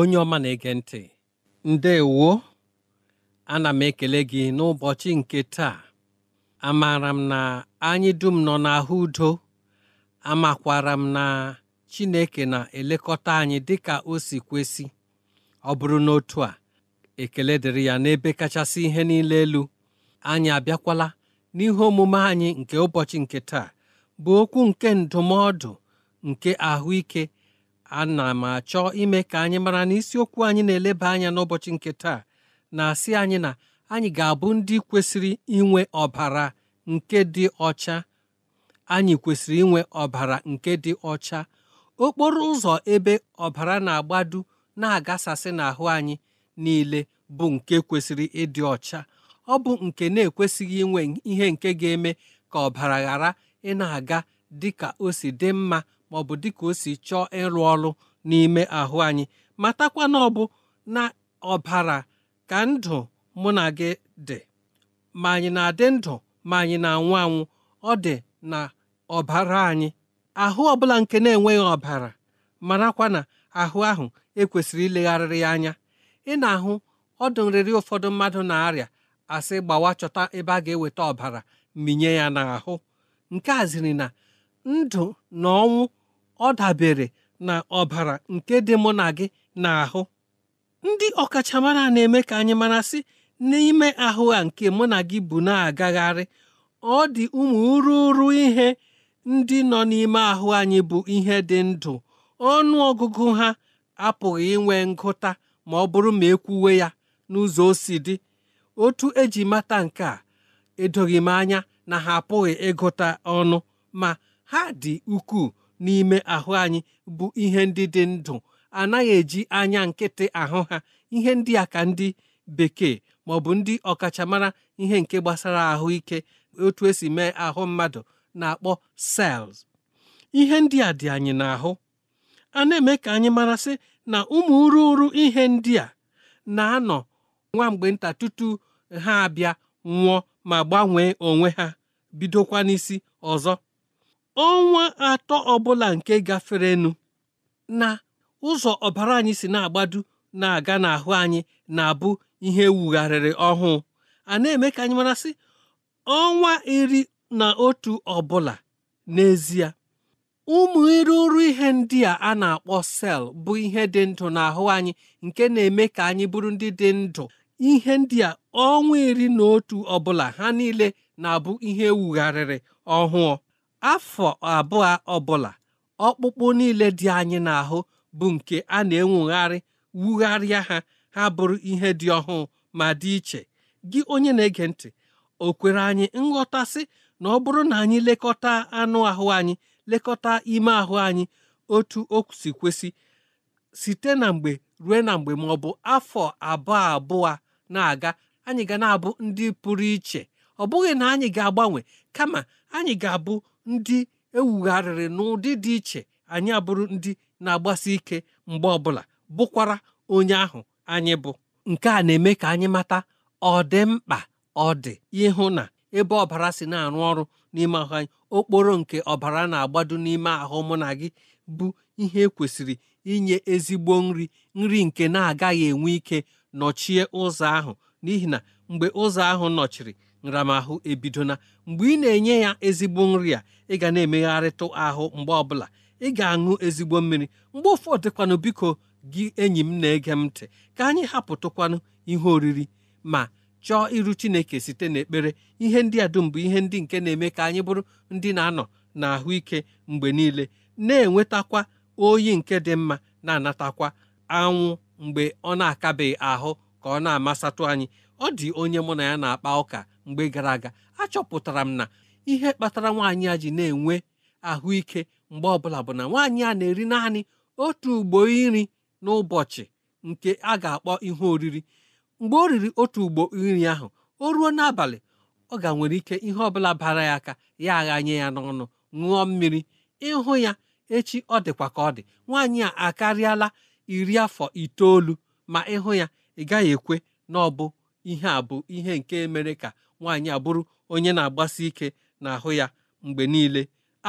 onye ọma na-ege ntị ndewo ana m ekele gị n'ụbọchị nke taa amaara m na anyị dum nọ n'ahụ udo amakwara m na Chineke na-elekọta anyị dị ka o si kwesị ọ bụrụ n'otu a ekele dịrị ya n'ebe kachasị ihe niile elu anyị abịakwala n'ihe omume anyị nke ụbọchị nke taa bụ okwu nke ndụmọdụ nke ahụike ana m achọ ime ka anyị mara na isiokwu anyị na-eleba anya n'ụbọchị nke taa na-asị anyị na anyị ga-abụ ndị kwesịrị inwe ọbara nke dị ọcha anyị kwesịrị inwe ọbara nke dị ọcha okporo ụzọ ebe ọbara na-agbadu na-agasasị n'ahụ anyị niile bụ nke kwesịrị ịdị ọcha ọ bụ nke na-ekwesịghị inwe ihe nke ga-eme ka ọbara ghara ị na-aga dị ka o si dị mma ma ọ bụ dịka o si chọọ ịrụ ọrụ n'ime ahụ anyị matakwa na ọ bụ na ọbara ka ndụ mụ na gị dị ma anyị na-adị ndụ ma anyị na-anwụ anwụ ọ dị na ọbara anyị ahụ ọbụla nke na-enweghị ọbara marakwa na ahụ ahụ ekwesịrị ilegharịrị ya anya ị na-ahụ ọdụ nrịrị ụfọdụ mmadụ na-arịa asị gbawa chọta ebe a ga-eweta ọbara minye ya n'ahụ nke a ziri na ndụ na ọnwụ ọ dabere na ọbara nke dị mụ na gị n'ahụ ndị ọkachamara na-eme ka anyị mara sị n'ime ahụ a nke mụ na gị bụ na-agagharị ọ dị ụmụ ruru ihe ndị nọ n'ime ahụ anyị bụ ihe dị ndụ ọnụ ọgụgụ ha apụghị inwe ngụta ma ọ bụrụ ma ekwuwe ya n'ụzọ o dị otu eji mata nke a edoghị m anya na ha apụghị ịgụta ọnụ ma ha dị ukwuu n'ime ahụ anyị bụ ihe ndị dị ndụ anaghị eji anya nkịtị ahụ ha ihe ndị a ka ndị bekee ma bụ ndị ọkachamara ihe nke gbasara ahụike otu esi mee ahụ mmadụ na-akpọ cells ihe ndị a dị anyị n'ahụ a na-eme ka anyị marasị na ụmụ ururu ihe ndị a na-anọ nwa mgbe nta tutu ha abịa nwụọ ma gbanwee onwe ha bidokwa n'isi ọzọ ọnwa atọ ọbụla nke gaferenu na ụzọ ọbara anyị si na-agbadu na-aga n'ahụ anyị na-abụ ihe wugharịrị ọhụụ a na-eme ka anyị marasị ọnwa iri na otu ọbụla n'ezie ụmụ iruru ihe ndị a a na-akpọ sel bụ ihe dị ndụ n'ahụ anyị nke na-eme ka anyị bụrụ ndị dị ndụ ihe ndị a ọnwa iri na otu ọbụla ha niile na-abụ ihe wugharịrị ọhụụ afọ abụọ ọbụla ọkpụkpụ niile dị anyị na ahụ bụ nke a na-enwugharị wugharịa ha ha bụrụ ihe dị ọhụụ ma dị iche gị onye na-ege ntị o kwere anyị nghọtasị na ọ bụrụ na anyị lekọta anụ ahụ anyị lekọta ime ahụ anyị otu o si site na mgbe ruo na mgbe ma ọ bụ afọ abụọ abụọ na-aga anyị ga na-abụ ndị pụrụ iche ọ bụghị na anyị ga-agbanwe kama anyị ga-abụ ndị ewugharịrị n'ụdị dị iche anyị abụrụ ndị na-agbasi ike mgbe ọbụla bụkwara onye ahụ anyị bụ nke a na-eme ka anyị mata ọ dị mkpa ọ dị ịhụ na ebe ọbara si na-arụ ọrụ n'ime ahụ anyị okporo nke ọbara na-agbado n'ime ahụ mụ na gị bụ ihe ekwesịrị inye ezigbo nri nri nke na-agaghị enwe ike nọchie ụzọ ahụ n'ihi na mgbe ụzọ ahụ nọchiri nramahụ ebidona mgbe ị na-enye ya ezigbo nri a ị ga na-emegharịtụ ahụ mgbe ọbụla ị ga-aṅụ ezigbo mmiri mgbe ụfọdụkwanụ biko gị enyi m na-ege m ntị ka anyị hapụtụkwanụ ihe oriri ma chọọ iru chineke site n'ekpere ihe ndị a dum bụ ihe ndị nke na-eme ka anyị bụrụ ndị na-anọ na ahụike mgbe niile na-enwetakwa oyi nke dị mma na-anatakwa anwụ mgbe ọ na-akabeghị ahụ ka ọ na-amasatụ anyị ọ dị onye mụ na ya na-akpa ụka mgbe gara aga achọpụtara m na ihe kpatara nwaanyị a ji na-enwe ahụike mgbe ọbụla bụ na nwaanyị a na-eri naanị otu ugbo nri n'ụbọchị nke a ga-akpọ ihe oriri mgbe o riri otu ugbo nri ahụ o ruo n'abalị ọ ga nwere ike ihe ọbụla bara ya aka ya aghanye ya n'ọnụ ṅụọ mmiri ịhụ ya echi ọ dịkwa ka ọ dị nwaanyị a akarịala iri afọ itoolu ma ịhụ ya ị gaghị ekwe na ọ bụ ihe a bụ ihe nke mere ka nwaanyị abụrụ onye na-agbasi ike n'ahụ ya mgbe niile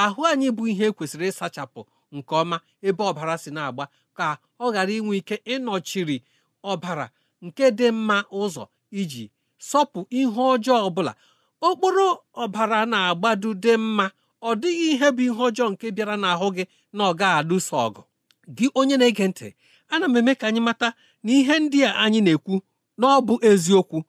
ahụ anyị bụ ihe kwesịrị ịsachapụ nke ọma ebe ọbara si na-agba ka ọ ghara inwe ike ịnọchiri ọbara nke dị mma ụzọ iji sọpụ ihe ọjọọ ọbụla okporo ọbara na-agbadu dị mma ọ dịghị ihe bụ ihe ọjọọ nke bịara n'ahụ gị na ọ gaghị alụso ọgụ gị onye na-ege ntị ana m eme ka anyị mata na ihe ndị a anyị na-ekwu n'ọ bụ eziokwu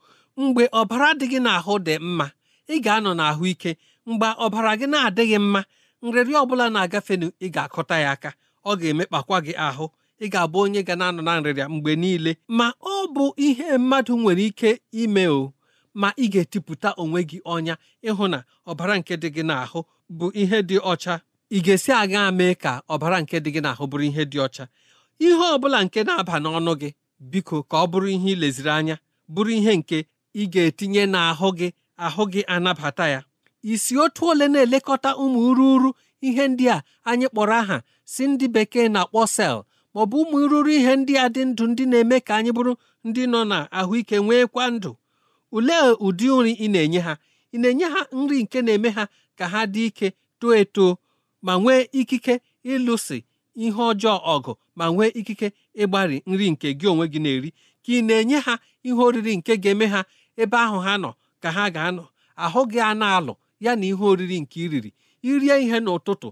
mgbe ọbara dị gị n'ahụ dị mma ị ga-anọ ike mgbe ọbara gị na-adịghị mma nrịrị bụla na-agafenu ị ga-akụta ya aka ọ ga-emekpakwa gị ahụ ị ga-abụ onye ga na-anọ na nrịrịa mgbe niile ma ọ bụ ihe mmadụ nwere ike ime o ma ị ga-etipụta onwe gị ọnya ịhụ na ọbara nke dị gị n'ahụ bụ ihe dị ọcha ị ga-esi aga mee ka ọbara nke dị gị n'ahụ bụrụ ihe dị ọcha ihe ọ bụla nke na-aba n'ọnụ gị biko ka ọ bụrụ ihe ileziri anya bụrụ ihe nke ị ga-etinye n'ahụ gị ahụ gị anabata ya isi otu ole na-elekọta ụmụ ururu ihe ndị a anyị kpọrọ aha si ndị bekee na-akpọ sel maọbụ ụmụ ururu ihe ndị a dị ndụ ndị na-eme ka anyị bụrụ ndị nọ na ahụike nweekwa ndụ ulee ụdị nri ị na-enye ha ị na-enye ha nri nke na-eme ha ka ha dị ike too eto ma nwee ikike ịlụsi ihe ọjọọ ọgụ ma nwee ikike ịgbari nri nke gị onwe gị na-eri ka ị na-enye ha ihe oriri nke ga-eme ha ebe ahụ ha nọ ka ha ga-anọ ahụ gị a na-alụ ya na ihe oriri nke iriri irie ihe n'ụtụtụ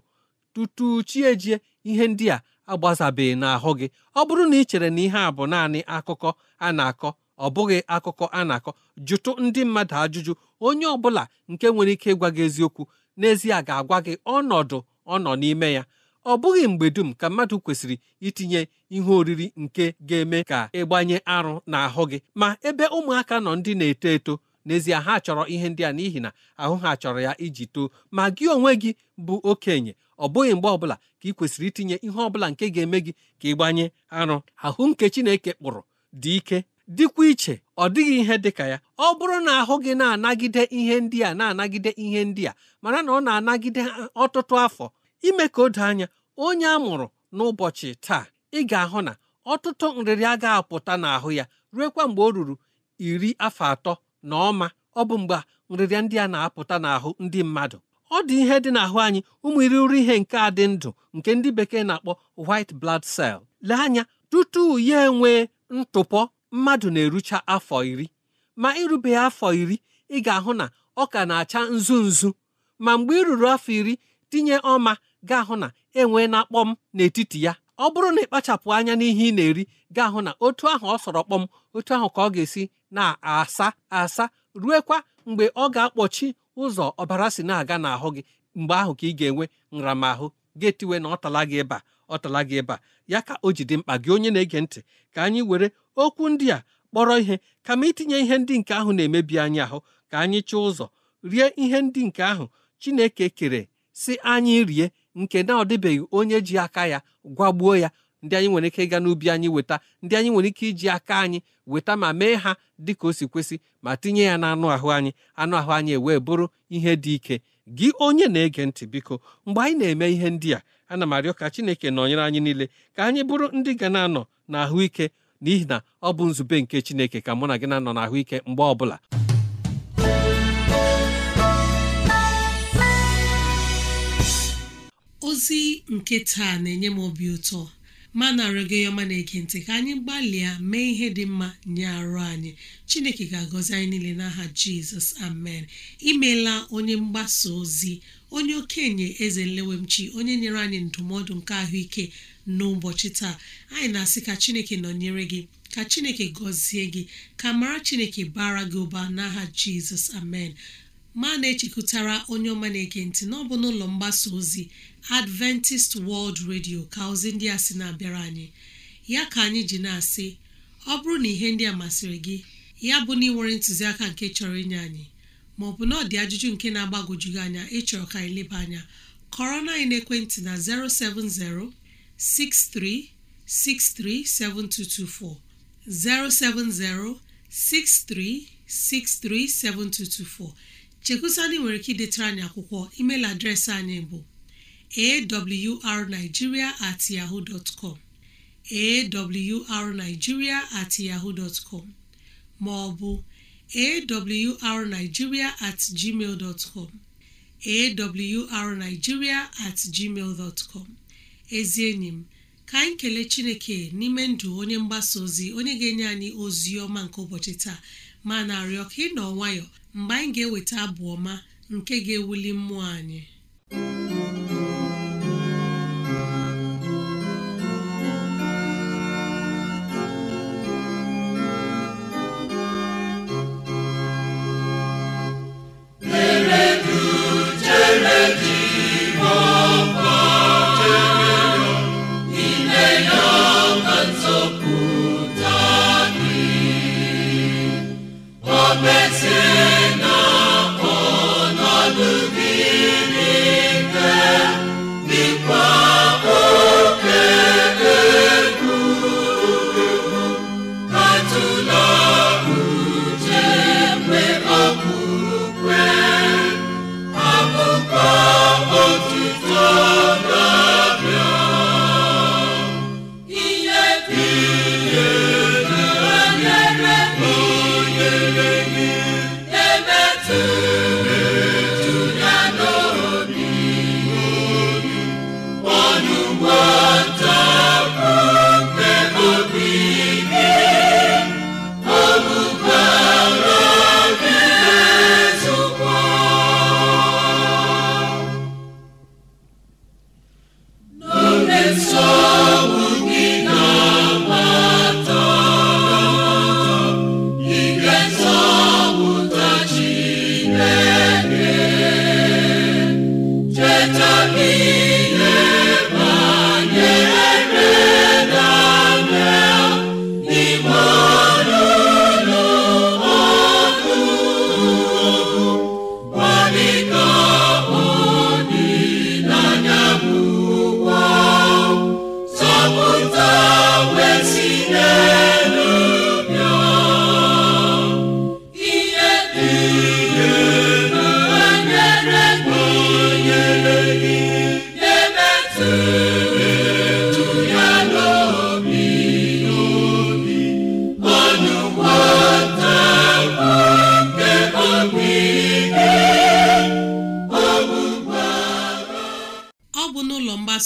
tutu chi ejie ihe ndị a agbazabeghị n'ahụ gị ọ bụrụ na ị chere na ihe a bụ naanị akụkọ a na-akọ ọ bụghị akụkọ a na-akọ jụtụ ndị mmadụ ajụjụ onye ọ bụla nke nwere ike ịgwa gị eziokwu n'ezie ga-agwa gị ọnọdụ ọ nọ n'ime ya ọ bụghị mgbe dum ka mmadụ kwesịrị itinye ihe oriri nke ga-eme ka ịgbanye arụ n'ahụ gị ma ebe ụmụaka nọ ndị na-eto eto n'ezie ha chọrọ ihe ndị a n'ihi na ahụ ha chọrọ ya iji too ma gị onwe gị bụ okenye ọ bụghị mgbe ọbụla ka ị kwesịrị itinye ihe ọbụla nke ga-eme gị ka ịgbanye arụ ahụ nke Chineke kpụrụ dị ike dịkwa iche ọ dịghị ihe dịka ya ọ bụrụ na ahụ gị na-anagide ihe ndị a na-anagide ihe ndị a mara na ọ na-anagide ọtụtụ afọ ime ka o doo anya onye a mụrụ n'ụbọchị taa ị ga-ahụ na ọtụtụ nrịrị agaghị apụta n'ahụ ya kwa mgbe o ruru iri afọ atọ na ọma ọ bụ mgbe nrịrịa ndị a na-apụta n'ahụ ndị mmadụ ọ dị ihe dị n'ahụ anyị ụmụ irighiri ihe nke a dị ndụ nke ndị bekee na-akpọ white blood cell lee anya tutu ya enwee ntụpọ mmadụ na-erucha afọ iri ma irube afọ iri ị ga-ahụ na ọ ka na-acha nzu nzu ma mgbe i ruru afọ iri tinye ọma ga-ahụ na enwee na-akpọm n'etiti ya ọ bụrụ na ịkpachapụ anya n'ihe ị na-eri ga-ahụ na otu ahụ ọ sọrọ kpọm otu ahụ ka ọ ga-esi na-asa asa ruekwa mgbe ọ ga-akpọchi ụzọ ọbara si na-aga n'ahụ gị mgbe ahụ ka ị ga-enwe nramahụ ga-etiwe na ọ gị ịba ọ gị ịba ya ka o jide mkpa gị onye na-ege ntị ka anyị were okwu ndị a kpọrọ ihe kama itinye ihe ndị nke ahụ na-emebi anyị ahụ ka anyị chọọ ụzọ rie ihe ndị nke ahụ Chineke kere si anyị rie nke na ọ dịbeghị onye ji aka ya gwagbuo ya ndị anyị nwere ike ịga n'ubi anyị weta ndị anyị nwere ike iji aka anyị weta ma mee ha dị ka o si kwesị ma tinye ya n'anụ ahụ anyị anụ ahụ anyị ewee bụrụ ihe dị ike gị onye na-ege ntị biko mgbe anyị na-eme ihe ndị a ana m arịọ ka Chineke nọnyere anyị niile ka anyị bụrụ ndị ga na-anọ n'ahụike n'ihi na ọ bụ nzube nke Chineke ka mụ na gị na-anọ n'ahụike mgbe ọbụla ozi nke taa na-enye m obi ụtọ ma narị ya ọma na-ege ntị ka anyị gbalịa mee ihe dị mma nye arụ anyị chineke ga-agọzi anyị niile n'aha jizọs amen imeela onye mgbasa ozi onye okenye eze nlewemchi onye nyere anyị ndụmọdụ nke ahụike n'ụbọchị taa anyị na-asị ka chineke nọnyere gị ka chineke gọzie gị ka mara chineke bara gị ụba n'aha jizọs amen ma na-echekụtara onye ọma na-ege ntị n'ọbụ n'ụlọ mgbasa ozi adventist world radio ka ozi ndị a sị na-abịara anyị ya ka anyị ji na-asị ọ bụrụ na ihe ndị a masịrị gị ya bụ na ị nwere ntụziaka nke chọrọ inye anyị maọbụ na ọ dị ajụjụ nke na-agbagojugị anya ịchọrọ ka anyị leba anya kọrọ na anyị n'ekwentị na 6363 7224. chekusandị nwere ike idetara anyị akwụkwọ email adreesị anyị bụ awrnigeria at yahoo dot com at yahoo dot com ma awrnigeria at gmail dot com at gmail dot com ezi enyi m ka anyị kelee chineke n'ime ndụ onye mgbasa ozi onye ga-enye anyị ozi ọma nke ụbọchị taa ma na-arịọ ka ị nọ nwayọọ mgbe anyị ga-eweta abụ ọma nke ga-ewuli mmụọ anyị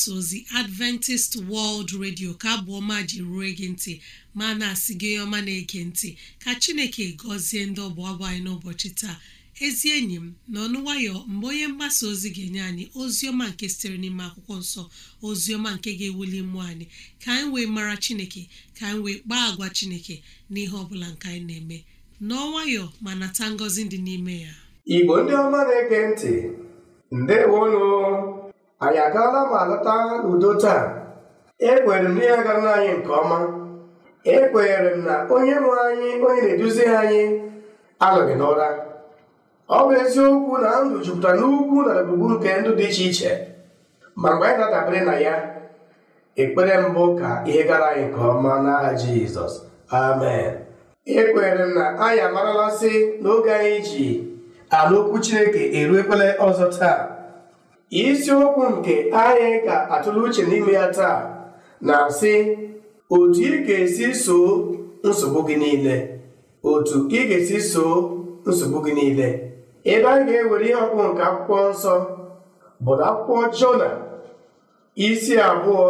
mgbasa ozi adventist world radio ka abụ ọma ji rue gị ntị ma na-asị gị ọma na-ege ntị ka chineke gọzie ndị ọbụ abụ anyị n'ụbọchị taa ezi enyi m na ọnụ nwayọ mgbe onye mgbasa ozi ga-enye anyị ozi ọma nke sitere n'ime akwụkwọ nsọ ozi ọma nke ga-ewuli mmụọ anyị ka anyị wee mara chineke ka anyị wee kpaa agwa chineke n'ihe ọ bụla nke anyị na-eme n'ọnwayọ ma nata ngọzi dị n'ime ya igbo ndị ọma na-ege ntị ndewo anyị agaala ma lọta udo taa Ekwenyere m na ya gara anyị nke ọma ekwenyere m na onye nwe anyị onye na-eduzi anyị anọghị n'ụra ọ bụ eziokwu na ndụ jupụtara n'ugwu na ebugbu nke ndụ dị iche iche ma mgbe anyị na-adabere na ya ekpere mbụ ka ihe gara anyị nke ọma n'aha Jizọs amen ekwenyere m na anyị amaralasị n'oge anyị ji ala okwu Chineke eruekwele ọzọ taa isiokwu nke anyị ga-atụle uche n'ime ya taa na-asị otu ị ga-esi soo nsogbu gị niile otu ị ga-esi soo nsogbu gị niile ebe a ga-ewere ihe ọkpụ nke akwụkwọ nsọ bụ akwụkwọ jona isi abụọ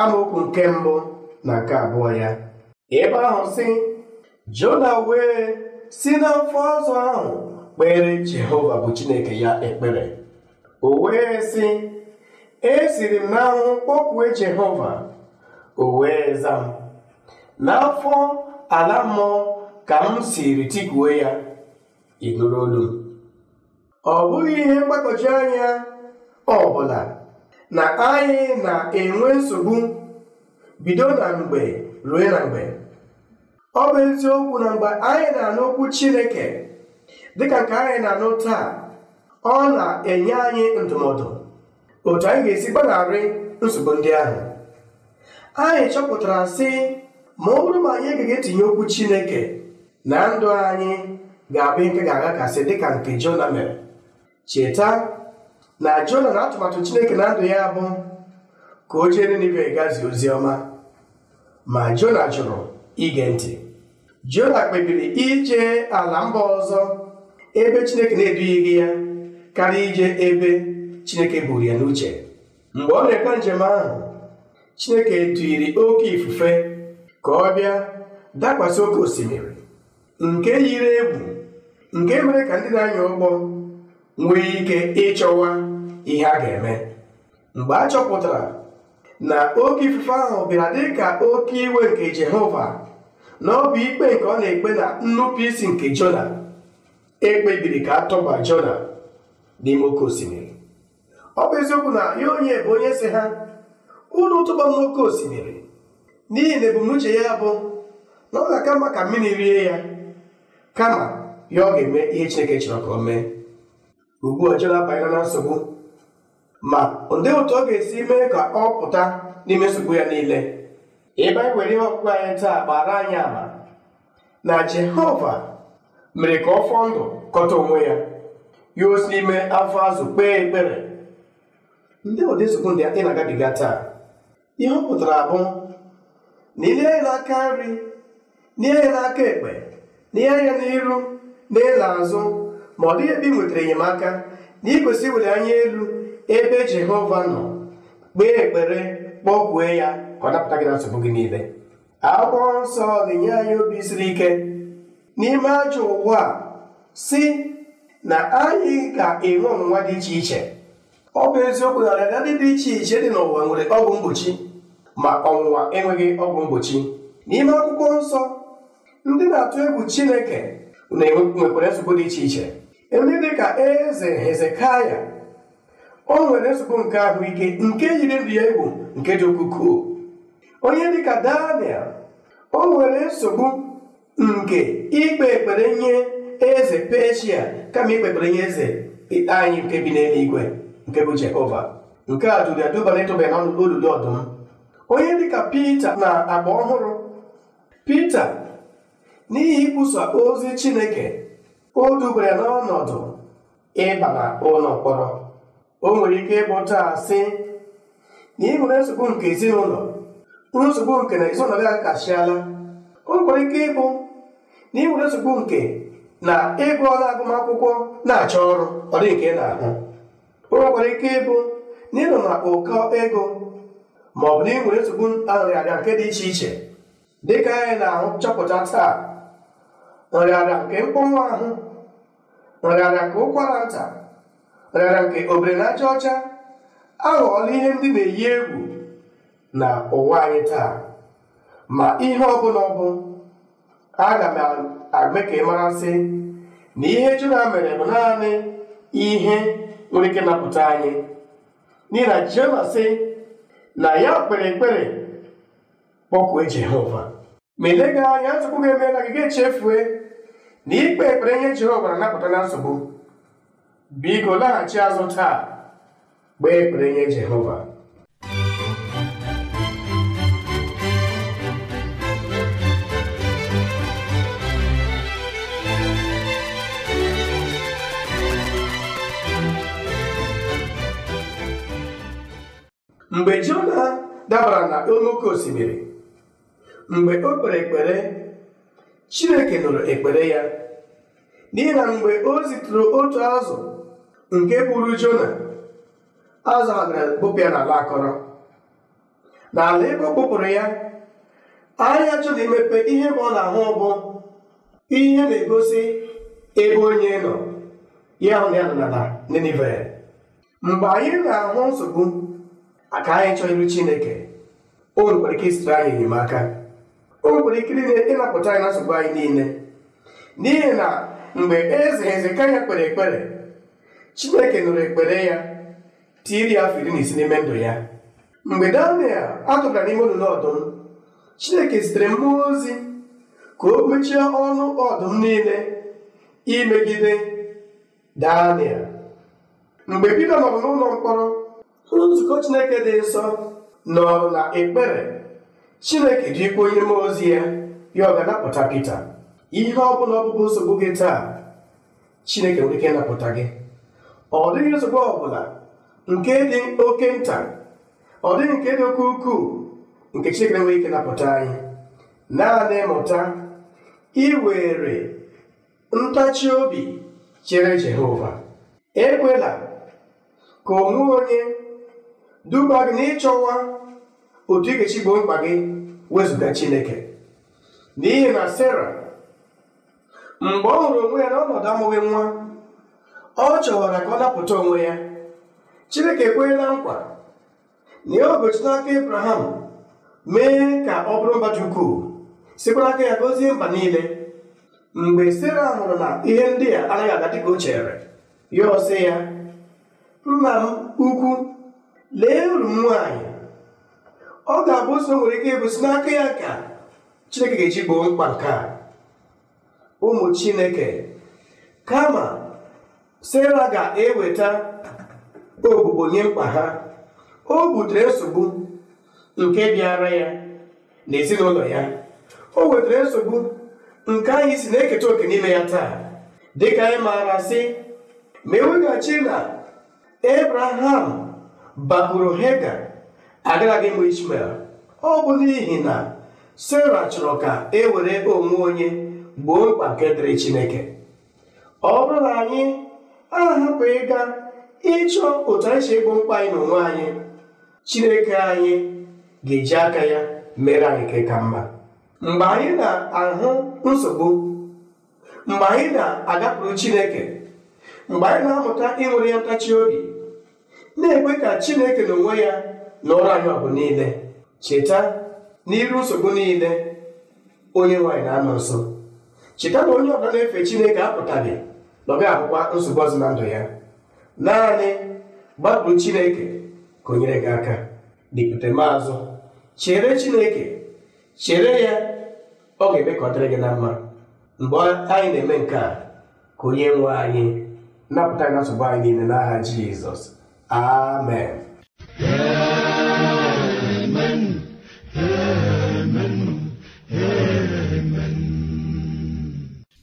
amaokwu nke mbụ na nke abụọ ya ebe ahụ si, jona wee si n'afọ ọzọ ahụ kpere jehova bụ chineke ya ekpere o wee sị esiri m n'anwụ kpọkwue Jehova o wee n'afọ ala mmụọ ka m siri tikuo ya ịnụrụ olu ọ bụghị ihe mgbagwoju anya ọ bụla na anyị na-enwe nsogbu bido na mgbe ruo na mgbe ọ bụ eziokwu na mgbe anyị na-anụ okwu Chineke dịka nke anyị na-anụ taa ọ na-enye anyị ndụmọdụ otu anyị ga-esi gbanarị nsogbu ndị ahụ anyị chọpụtara sị ma ọ bụrụ ma anyị agaghị etinye okwu Chineke na ndụ anyị ga-abụ nke ga-aghakasị dịka nke Jona mere cheta na Jona na atụmatụ Chineke na ndụ ya bụ ka o jee Ninive gazie ozi ọma ma Jona jụrụ ige ntị Jona kpebiri ije ala mba ọzọ ebe Chineke na-edughịghị ya karịa ije ebe Chineke buru ya n'uche mgbe ọ na-ekpe njem ahụ Chineke tụyiri oke ifufe ka ọ bịa dakwasị oke osimiri nke yiri egwu nke mere ka ndị na-anya ụgbọ nwee ike ịchọwa ihe a ga-eme mgbe a chọpụtara na oke ifufe ahụ bịara dị ka oke iwe nke Jehova na ọ ikpe nke ọ na-ekpe na nnupụisi nke Jona ekpebiri ka a tọba n'ime oke osimiri ọ bụ eziokwu na ya onye bụ onye si ha ụlọ tụba m n'oke osimiri n'ihi na ebumnuche ya bụ na ọ ga-aka mma ka mmiri rie ya kama ya ọ ga-eme ihe Chineke chọrọ ka ọ mee ugbu ọ jela abanyela na nsogbu ma ndị otu ọ ga-esi mee ka ọ pụta n'ime nsogbu ya niile ebe anyị were ihe ọkpụkpụ anyị taa gbara anyị ama na Jehova mere ka ọ fọọ ndụ kọta onwe ya yuo si n'ime afọ azụ kpee ekpere ndị ụdị nsogbu ndị ị na-agabiga taa ihe ọ pụtara bụ na aka nri n'ihe ya n'aka ekpe n'ihe ya n'iru na azụ ma ọ dịghị ebe ị nwetara enyemaka na ịkwesị iwere anya elu ebe jehova nọ kpee ekpere kpọkwue ya ka ọ napụta gị na nsogbu gị niile akwụkwọ nsọ ga-enye anyị obi siri ike n'ime ajọ ụwa si na anyị ga-enwe ọnwụnwa dị iche iche ọ bụ eziokwu na ọrịa ndị dị iche iche dị n'ụwa nwere ọgwụ mgbochi ma ọnwụnwa enweghị ọgwụ mgbochi n'ime akwụkwọ nsọ ndị na-atụ egwu Chineke na-enwekwara nsogbu dị iche iche ndị dị ka eze Hezekaya o nwere nsogbu nke ahụike nke yiri ndụ ya egwu nke dị ukwuu onye dị ka Daniel o nwere nsogbu nke ikpe ekpere nye eze peshia kama ikpekpere ihe eze anyị nke bi n'eluigwe nke bụ jehova nke a duru ya duba n'ịtụba n'ọnụ n'olulu ọdụm onye dịka pita na agba ọhụrụ pita n'ihi ikwusa ozi chineke o dubara ya n'ọnọdụ ịba na ụlọ mkpọrọ o nwere ike ịbụ taa sị na ị nwere nsogbu nke ezinụlọ nsogbu nke na ezinụlọ gị akasịala o nwere ike ịbụ na ị nwere nsogbu nke na ịgụ ọrụ agụmakwụkwọ na-achọ ọrụ ọ dị nke na-ahụ o ike ịbụ na na ụkọ ego ma ọ bụ na ị nwere nsogbu nrịarịa nke dị iche iche dịka anyị na-ahụ chọpụta taa nrịarịa nke mkpọnwụ ahụ nrịarịa nke ụkwara nta nrịarịa nke obere na aja ọcha aghọọla ihe ndị na-eyi egwu na ụwa anyị taa ma ihe ọ bụla ọ bụ aga m eme ka ị mara sị na ihe Jona mere bụ naanị ihe nwere ike napụta anyị n'ihi na sị na ya kpere ekpere kpọkue Jehova ma elega anya nsogbu ga-eme na gị ga-echefue na ikpe ekpere ihe Jehova na-anapụta na nsogbu biko laghachi azụ taa gbee ekpere nye Jehova mgbe Jona dabara na oke osimiri mgbe o kpere ekpere Chineke nụrụ ekpere ya n'ihi na mgbe o zitụrụ otu azụ nke buru Jona azụ a na-ekpopịa n'ala akọrọ n'ala ebe ọ kpụpụrụ ya anya Jona imepe ihe ma ọ na-ahụ bụ ihe na-egosi ebe onye nọ ya hụ na ya nọ n'ala Ninive mgbe anyị na-ahụ nsogbu aka anyị chọọ iru chineke o nwekwara ike isitụ anyị enyemaka o nwekwara ike ịnapụta anyị na nsogbu anyị niile n'ihi na mgbe eze hezekaya kpere ekpere chineke nụrụ ekpere ya tiri ya afọ iri na isi n'ime ndụ ya mgbe daniel atụgara n'ime olulu ọdụm chineke zitere mmụọ ozi ka o mechie ọnụ ọdụm niile imegide daniel mgbe pita nọrọ n'ụlọ mkpọrọ nzukọ Chineke dị nsọ nọ na ekpere Chineke ji ikwu onye mmụọ ozi ya ya ọ ga-anapụta Pita ihe ọ bụla ọbụbụ nsogbu gị taa Chineke nwere ike ịnapụta gị ọ dịghị nsogbu ọbụla nke dị oke nta ọ dịghị nke dị oke ukwuu nke Chineke nwere ike napụta anyị naanị mụta iwere ntachi obi chere Jehova ekwela ka onwe onye duba gị n'ịchọwa otu ị ga mkpa gị wezụga Chineke n'ihi na Sera mgbe ọ hụrụ onwe ya n'ọnọdụ amụghị nwa ọ chọwara ka ọ napụta onwe ya Chineke ekwenyela nkwa na ya obochi n'aka Ibrahim, mee ka ọ bụrụ mba dị ukwuu sikwa n'aka ya gozie mba niile mgbe Sera hụrụ na ihe ndị a anaghị aga dịka o chere ya ọsị ya nna m ukwu lee uru m nwaanyị ọ ga-abụ ụzọ nwere ike ịbụ n'aka ya ka chineke ga-eji mkpa nke a ụmụ chineke kama sera ga-eweta ogbugbo nye mkpa ha o butere nsogbu nke bịara ya na ezinụlọ ya o wetara nsogbu nke anyị si na-eketa oke n'ime ya taa dịka anyị maara sị ma eweghachi na ebraham bakpuru hega agaraghị m ishmel ọ bụ n'ihi na sera chọrọ ka e were onwe onye gboo mkpa nke dịrị chineke ọ bụrụ na anyị ahapụ ịga ịchọ otu anyị si mkpa anyị na onwe anyị chineke anyị ga-eji aka ya mere anyị nke ka mma mgbe anyị na-ahụ nsogbu mgbe anyị na-agapụrụ chineke mgbe anyị na-amụta ịnwere ya ntachi obi na-ekwe ka chineke n'onwe ya na ọrụ anyị ọgụ niile cheta n'iru nsogbu niile onye nwaanyị na-anọ nso cheta na onye ọbụla na-efe chineke apụtaghị na ga-abụkwa nsogbu ọzọ na ndụ ya naanị gbapụrụ chineke ka o nyere gị aka dịpụta m azụ chere chineke chere ya ọ ga-eme ka ọ dịrị gị na mma mgbe anyị na-eme nke a ka onye nwe anyị napụta gị nsogbu anyị niile n'aha Jizọs Amen.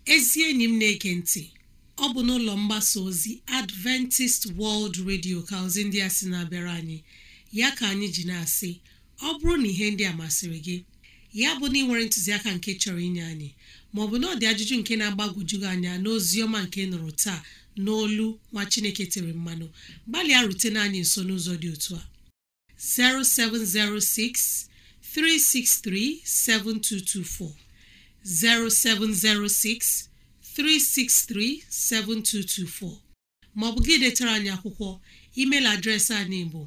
Ezi enyi m na-eke ntị ọ bụ n'ụlọ mgbasa ozi Adventist World Radio ka ozi ndị a sị na-abịara anyị ya ka anyị ji na-asị ọ bụrụ na ihe ndị a masịrị gị ya bụ na ị nwere ntụziaka nke chọrọ inye anyị maọbụ na ọ dị ajụjụ nke na-agbagwojughị anya n'ozi ọma nke nụrụ taa n'olu nwa chineke tiri mmanụ gbalịa rutena anyị nso n'ụzọ dị otu a 0706 363 7224 0706 363 7224 Ma ọ bụ gị detara anyị akwụkwọ email adreesị anyị bụ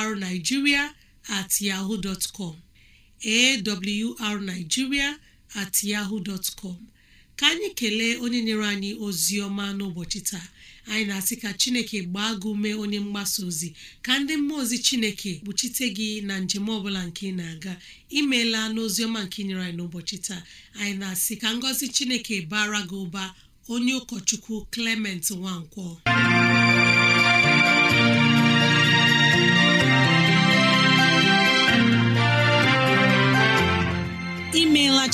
awrnigeria yahoo com awrnigeria at ka anyị kelee onye nyere anyị ozi ọma n'ụbọchị taa anyị na-asị ka chineke gbaa gị ume onye mgbasa ozi ka ndị mmụọ ozi chineke kpuchite gị na njem ọbụla nke ị na-aga imeela n'ozi ọma nke nyere anyị n'ụbọchị taa anyị na-asị ka ngọzi chineke bara gị ụba onye ụkọchukwu Clement Nwankwo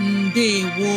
ndewo